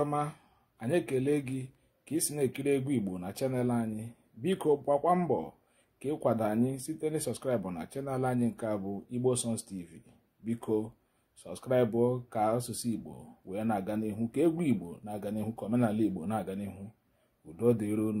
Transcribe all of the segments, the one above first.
ọma anyị ekele gị ka ị si na-ekiri egwu igbo na chanel anyị biko gbakwa mbọ ka ịkwado anyị site na sọskraịbụ na chanel anyị nke a bụ igbo songs tv biko sọskraịbụ ka asụsụ igbo wee na-aga n'ihu ka egwu igbo na-aga n'ihu ka omenala igbo na-aga n'ihu udo dịron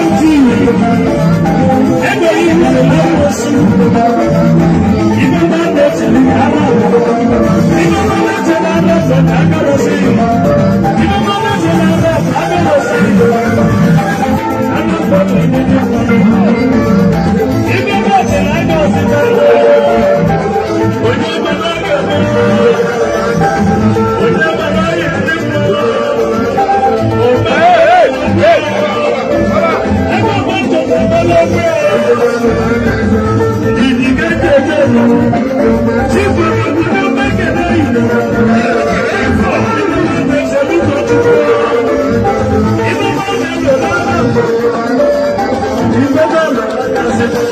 Thank you.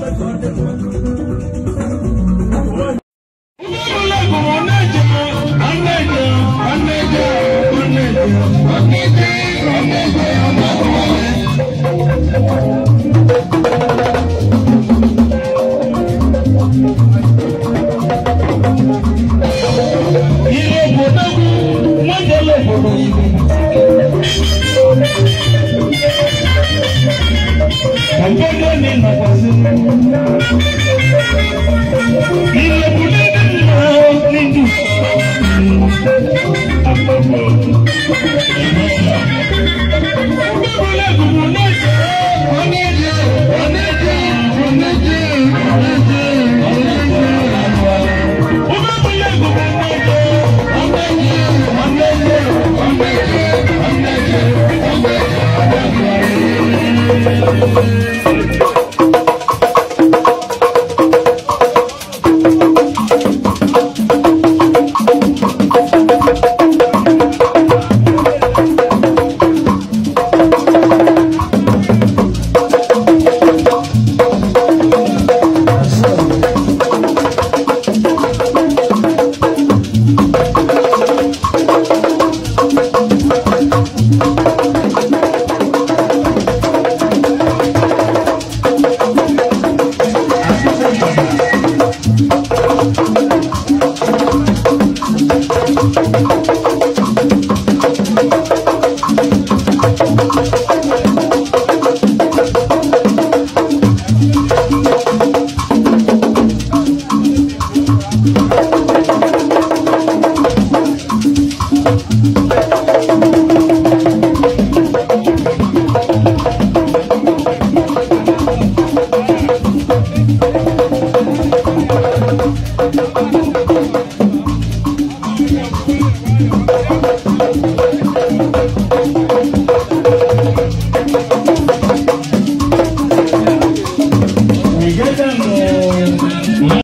I'm going to do it.